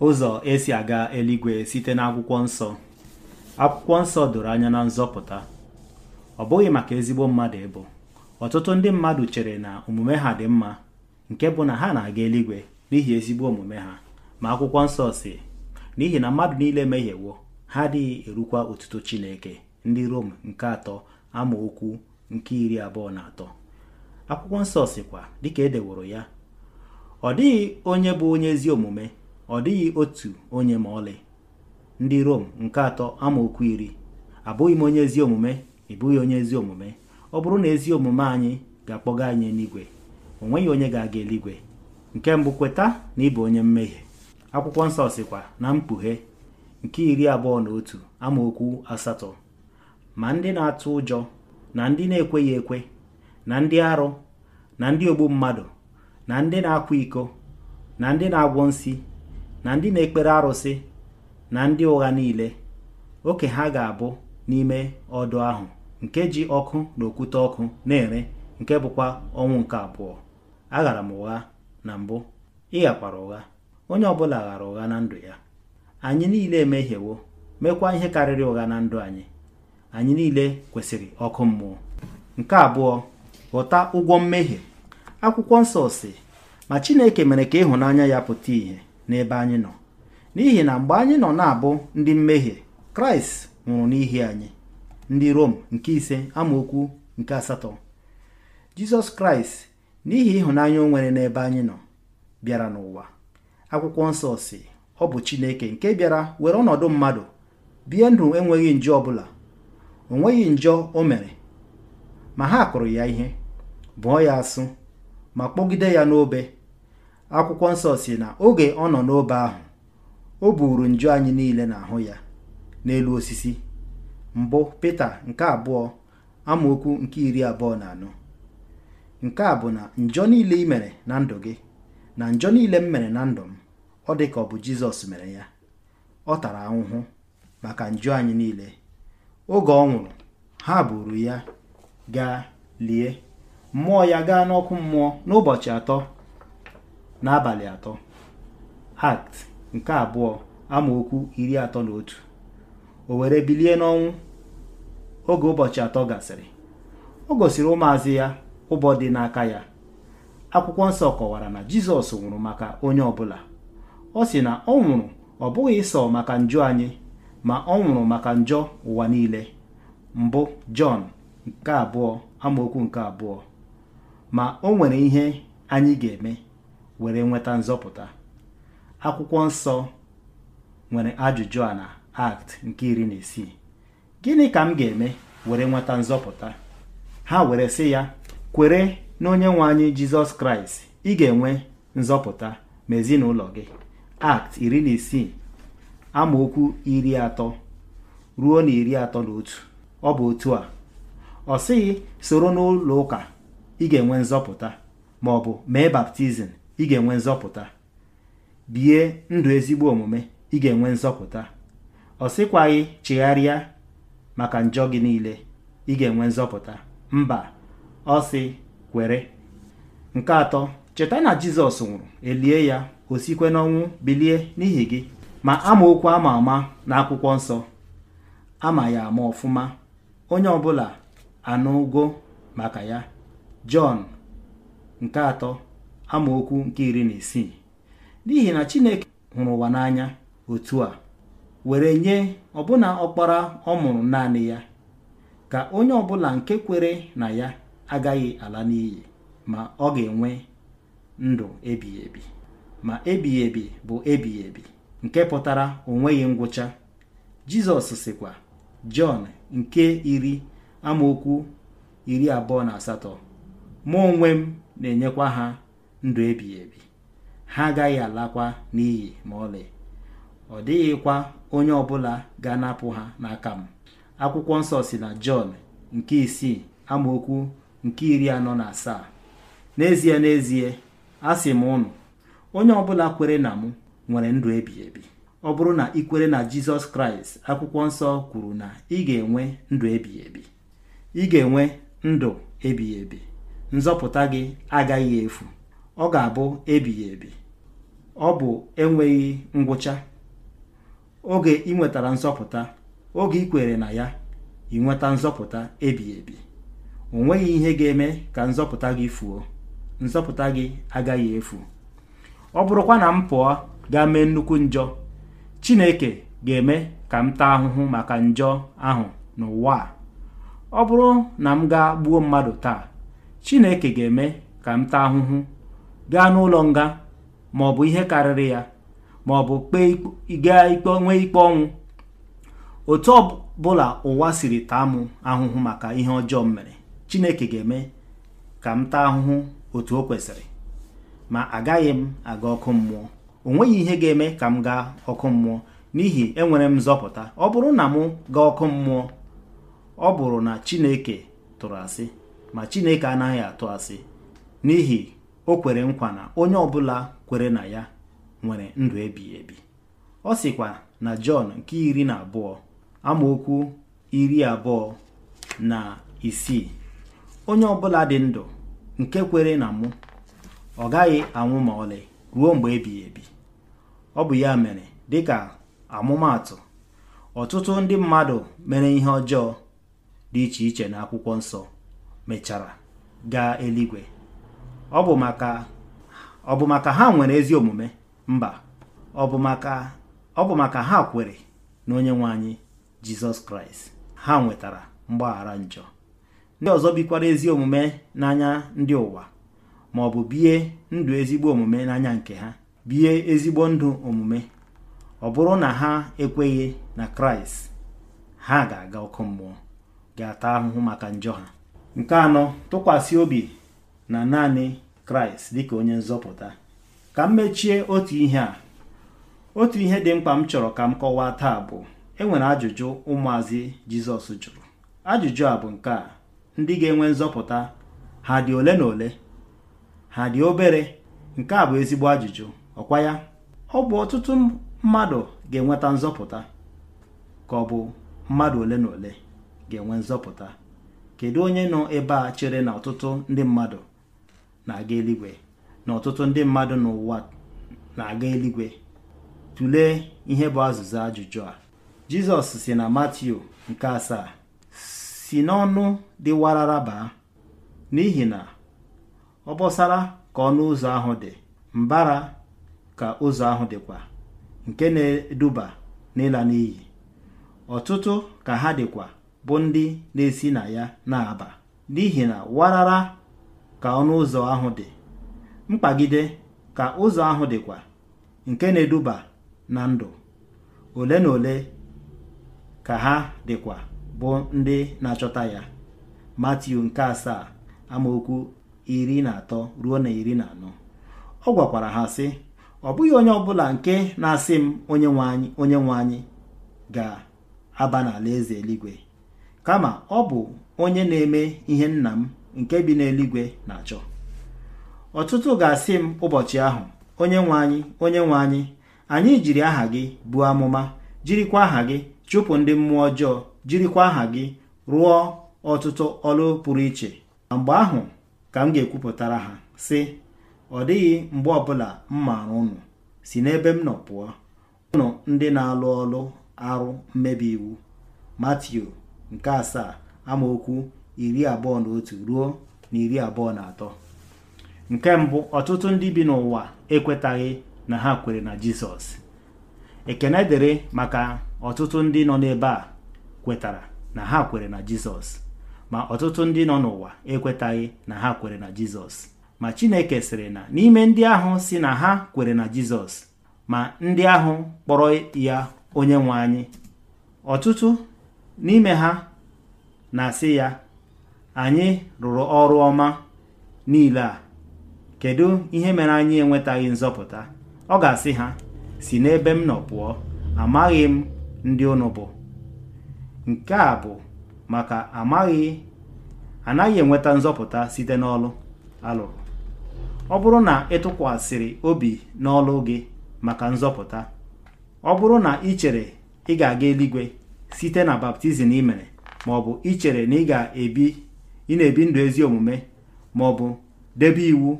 ụzọ esi aga eluigwe site n'akwụkwọ nsọ akwụkwọ nsọ doro anya na nzọpụta ọ bụghị maka ezigbo mmadụ ịbụ ọtụtụ ndị mmadụ chere na omume ha dị mma nke bụ na ha na-aga eluigwe n'ihi ezigbo omume ha ma akwụkwọ nsọ si n'ihi na mmadụ niile mehiewo ha adịghị erukwa otuto Chineke ndị Rom nke atọ okwu nke iri abụọ na atọ akwụkwọ nsọ sikwa dịka edeworo ya ọ dịghị onye bụ onye ezi omume ọ dịghị otu onye ma ọlị ndị Rom nke atọ amaokwu iri abụghị m onye ezi omume ị bụghị onye ezi omume ọ bụrụ na ezi omume anyị ga-akpọga anyị n'igwe o nweghị onye ga-aga eluigwe nke mbụ kweta na ịbụ onye mmehie akwụkwọ nsọ sịkwa na mkpughe nke iri abụọ na otu amaokwu asatọ ma ndị na-atụ ụjọ na ndị na-ekweghị ekwe na ndị arụ na ndị ogbu mmadụ na ndị na-akwa iko na ndị na-agwọ nsi na ndị na-ekpere arụsị na ndị ụgha niile oke ha ga-abụ n'ime ọdụ ahụ nke ji ọkụ na okwute ọkụ na-ere nke bụkwa ọnwụ nke abụọ aghara m ụgha na mbụ ịghakwara ụgha onye ọbụla ghara ụgha na ndụ ya anyị niile emehiewo mekwa ihe karịrị ụgha na ndụ anyị anyị niile kwesịrị ọkụ mmụọ nke abụọ ghọta ụgwọ mmehie akwụkwọ nsọ si ma Chineke mere ka ịhụnanya ya pụta ìhè n'ebe anyị nọ n'ihi na mgbe anyị nọ na-abụ ndị mmehie kraịst nwụrụ n'ihi anyị ndị rom nke ise amaokwu nke asatọ jizọs kraịst n'ihi ịhụnanya o nwere n'ebe anyị nọ bịara n'ụwa akwụkwọ nsọ si ọ bụ chineke nke bịara were ọnọdụ mmadụ bie ndụ enweghị njọ ọbụla o nweghị njọ o mere ma ha kụrụ ya ihe bụọ ya asụ ma kpọgide ya n'obe akwụkwọ nsọ si na oge ọ nọ n'obe ahụ o buuru nju anyị niile n'ahụ ya n'elu osisi mbụ pete nke abụọ amaokwu nke iri abụọ na anọ nke a bụ na njọ niile imere mere na ndụ gị na njọ niile m mere na ndụ m ọ dị ka ọ bụ Jizọs mere ya ọ tara ahụhụ maka njọ anyị niile oge ọ nwụrụ ha buru ya gaa lie mmụọ ya gaa n'ọkụ mmụọ n'ụbọchị atọ n'abalị atọ act nke abụọ amaokwu iri atọ na otu o were bilie n'ọnwụ oge ụbọchị atọ gasịrị o gosiri ụmụazị ya ụbọ dị n'aka ya akwụkwọ nsọ kọwara na jizọs nwụrụ maka onye ọbụla ọ sị na ọ nwụrụ ọ bụghị sọ maka njọ anyị ma ọ nwụrụ maka njọ ụwa niile mbụ jọn nke abụọ amaokwu nke abụọ ma o nwere ihe anyị ga-eme were nweta nzọpụta akwụkwọ nsọ nwere ajụjụ a na act nke iri na isii gịnị ka m ga-eme were nweta nzọpụta ha were sị ya kwere na onye nwe anyị jizọs kraịst ị ga-enwe nzọpụta ma ezinụlọ gị act iri na isii amaokwu iri atọ ruo na iri atọ na otu ọ bụ otu a ọ sịghị soro n'ụlọ ụka ị ga-enwe nzọpụta ma bụ mee baptizim ị ga-enwe nzọpụta bie ndụ ezigbo omume ị ga-enwe nzọpụta ọ sịkwaghị chigharịa maka njọ gị niile ị ga-enwe nzọpụta mba ọ sị kwere nke atọ cheta na jizọs nwụrụ elie ya o sikwe n'ọnwụ bilie n'ihi gị ma amaokwu ama ama na akwụkwọ nsọ ama ya ama ọfụma onye ọbụla anụgo maka ya jọn nke atọ amaokwu nke iri na isii n'ihi na Chineke hụrụ ụwa n'anya otu a were nye ọbụna ọkpara ọ mụrụ naanị ya ka onye ọbụla nke kwere na ya agaghị ala n'iyi ma ọ ga-enwe ndụ ebighị ma ebighị bụ ebighị nke pụtara onweghị ngwụcha Jizọs sịkwa Jọn nke iri amaokwu iri abụọ na asatọ mụ onwe m na-enyekwa ha ndụ ebighị ebi ha agaghị alakwa n'iyi ma ọlị ọ dịghịkwa onye ọbụla ga-anapụ ha n'aka m akwụkwọ nsọ si na Jọn nke isii amaokwu nke iri anọ na asaa n'ezie n'ezie sị m ụnụ onye ọbụla kwere na mụ nwere ndụ ebighị ebi ọ bụrụ na ị kwere na Jizọs Kraịst akwụkwọ nsọ kwuru na ị ga-enwe ndụ ebighị ebi ị ga-enwe ndụ ebighị ebi nzọpụta gị agaghị efu ọ ga-abụ ebighị ebi ọ bụ enweghị ngwụcha oge ị nwetara nzọpụta oge ị kwere na ya ị nweta nzọpụta ebighị ebi o nweghị ihe ga-eme ka nzọpụta gị fuo nzọpụta gị agaghị efu ọ bụrụkwa na m pụọ gaa mee nnukwu njọ Chineke ga-eme ka m taa ahụhụ maka njọ ahụ n'ụwa a ọ bụrụ na m gaa gbuo mmadụ taa Chineke ga-eme ka m taa ahụhụ gaa n'ụlọ nga ma ọ bụ ihe karịrị ya ma ọ bụ ikpe nwee ikpe ọnwụ otu ọbụla ụwa siri taa m ahụhụ maka ihe ọjọọ m mere Chineke ga-eme ka m taa ahụhụ otu o kwesịrị ma agaghị m aga ọkụ mmụọ o nweghị ihe ga-eme ka m gaa ọkụ mmụọ n'ihi enwere m nzọpụta ọ bụrụ na mụ gaa ọkụ mmụọ ọ bụrụ na Chineke tụrụ asị ma Chineke anaghị atụ asị n'ihi o kwere nkwa na onye ọbụla kwere na ya nwere ndụ ebighị ebi ọ sịkwa na Jọn nke iri na abụọ amaokwu iri abụọ na isii onye ọbụla dị ndụ nke kwere na mụ ọ gaghị anwụ ma ọlị ruo mgbe ebighị ebi ọ bụ ya mere dịka amụmatụ ọtụtụ ndị mmadụ mere ihe ọjọọ dị iche iche na akwụkwọ nsọ mechara gaa eluigwe ọ bụ maka ha nwere ezi omume mba ọ bụ maka ha kwere na onye nwe anyị jizọs kraịst ha nwetara mgbaghara njọ ndị ọzọ bikwara ezi omume n'anya ndị ụwa ma ọ bụ bie ndụ ezigbo omume n'anya nke ha bie ezigbo ndụ omume ọ bụrụ na ha ekweghị na kraịst ha ga-aga ọkụ mmụọ ga-ata ahụhụ maka njọ ha nke anọ tụkwasị obi na naanị kraịst dịka onye nzọpụta ka m mechie otu ihe a otu ihe dị mkpa m chọrọ ka m kọwaa taa bụ enwere ajụjụ ụmụazị jizọs jụrụ ajụjụ a bụ nke a ndị ga-enwe nzọpụta ha dị ole na ole ha dị obere nke a bụ ezigbo ajụjụ ọkwa ya ọ bụ ọtụtụ mmadụ ga-enweta nzọpụta ka ọ bụ mmadụ ole na ole ga-enwe nzọpụta kedu onye nọ ebe a chere na ọtụtụ ndị mmadụ na-aga eluigwe na ọtụtụ ndị mmadụ n'ụwa na-aga eluigwe tụlee ihe bụ azụzụ ajụjụ a jizọs si na matiu nke asaa si n'ọnụ dị warara baa n'ihi na ọbọsara ka ọnụ ụzọ ahụ dị mbara ka ụzọ ahụ dịkwa nke na-eduba n'ịla n'iyi ọtụtụ ka ha dịkwa bụ ndị na-esi na ya na-aba n'ihi na warara ka ọnụ ụzọ ahụ dị mkpagide ka ụzọ ahụ dịkwa nke na-eduba na ndụ ole na ole ka ha dịkwa bụ ndị na-achọta ya Matiu nke asaa amaokwu iri na atọ ruo na iri na anọ ọ gwakwara ha sị ọ bụghị onye ọbụla nke na-asị m onye nwe anyị onye nwe anyị ga-aba n'ala eze eluigwe kama ọ bụ onye na-eme ihe nna m nke bi n'eluigwe na-achọ ọtụtụ ga-asị m ụbọchị ahụ onye nwe anyị onye nwe anyị anyị jiri aha gị buo amụma jirikwa aha gị chụpụ ndị mmụọ ọjọọ jirikwa aha gị rụọ ọtụtụ ọlụ pụrụ iche ma mgbe ahụ ka m ga-ekwupụtara ha sị ọ dịghị mgbe ọbụla m maara unu si n'ebe m nọ pụọ unu ndị na-alụ ọlụ arụ mmebi iwu Matiu nke asaa amaokwu iri abụọ na otu ruo na iri abụọ na atọ nke mbụ ọtụtụ ndị bi n'ụwa ekwetaghị na ha kwere na Jizọs ekene dịrị maka ọtụtụ ndị nọ n'ebe a kwetara na ha kwere na Jizọs ma ọtụtụ ndị nọ n'ụwa ekwetaghị na ha kwere na Jizọs ma Chineke sịrị na n'ime ndị ahụ si na ha kwere na Jizọs ma ndị ahụ kpọrọ ya onye nwe anyị ọtụtụ n'ime ha na-asị ya anyị rụrụ ọrụ ọma niile a kedu ihe mere anyị enwetaghị nzọpụta ọ ga-asị ha si n'ebe m nọ pụọ amaghị m ndị unu bụ nke a bụ maka amaghị anaghị enweta nzọpụta site n'ọlụ alụrụ ọ bụrụ na ịtụkwasịrị obi n'ọlụ gị maka nzọpụta ọ bụrụ na ị chere ị ga-aga eluigwe site na baptizim imere mere ma ọ bụ ichere na ị ga-ebi ị na-ebi ndụ ezi omume ma ọ bụ debe iwu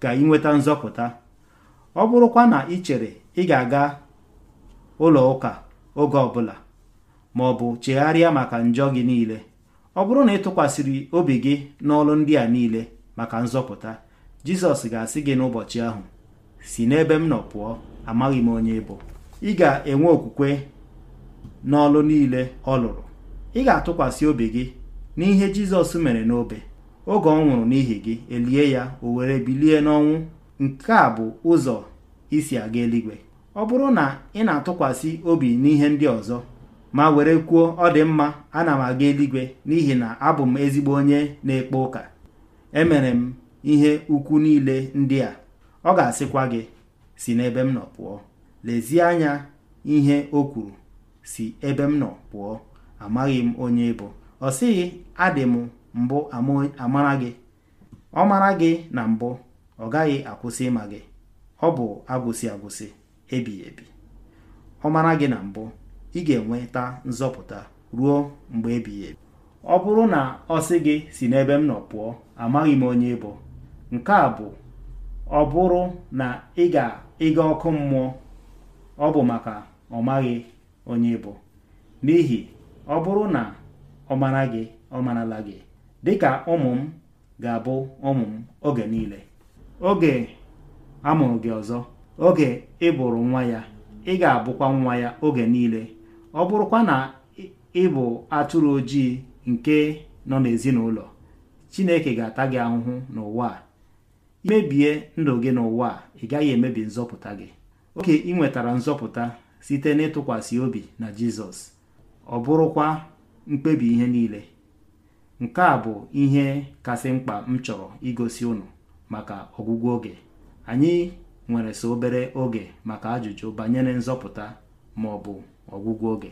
ka ị nweta nzọpụta ọ bụrụkwa na ị chere ị ga-aga ụlọ ụka oge ọbụla ma ọ bụ chegharịa maka njọ gị niile ọ bụrụ na ị tụkwasịrị obi gị n'ọrụ ndị a niile maka nzọpụta Jizọs ga-asị gị n'ụbọchị ahụ si n'ebe m nọ pụọ amaghị m onye bụ ị ga-enwe okwukwe n'ọlụ niile ọ lụrụ ị ga-atụkwasị obi gị n'ihe Jizọs mere n'obe oge ọ nwụrụ n'ihi gị elie ya o were bilie n'ọnwụ nke a bụ ụzọ isi aga eluigwe ọ bụrụ na ị na-atụkwasị obi n'ihe ndị ọzọ ma were kwuo ọ dị mma ana m aga eluigwe n'ihi na abụ m ezigbo onye na-ekpe ụka emere m ihe ukwu niile ndị a ọ ga-asịkwa gị si n'ebe m nọ pụọ lezie anya ihe o kwuru si ebe m nọ pụọ amaghị m onye ịbụ ọ sịghị adị m mbụ amara gị ọ mara gị na mbụ ọ gaghị akwụsị ịma gị ọ bụ agwụsị agwụsị ebighị ebi ọ mara gị na mbụ ị ga-enweta nzọpụta ruo mgbe ebighị ebi ọ bụrụ na ọ sị gị si n'ebe m nọ pụọ amaghị m onye ịbụ nke a bụ ọ bụrụ na ị ga-ịga ọkụ mmụọ ọ bụ maka ọ onye bụ n'ihi ọ bụrụ na ọ gị ọ marala gị dịka ụmụ m ga-abụ ụmụ m oge niile oge a mụrụ gị ọzọ oge ị bụrụ nwa ya ị ga-abụkwa nwa ya oge niile ọ bụrụkwa na ị bụ atụrụ ojii nke nọ n'ezinụlọ Chineke ga-ata gị ahụhụ n'ụwa a imebie ndụ gị n'ụwa ị gaghị emebi nzọpụta gị oke ị nwetara nzọpụta site n'ịtụkwasị obi na Jizọs ọ bụrụkwa mkpebi ihe niile nke a bụ ihe kasị mkpa m chọrọ igosi unu maka ọgwụgwụ oge anyị nwere so obere oge maka ajụjụ banyere nzọpụta ma ọ bụ ọgwụgwụ oge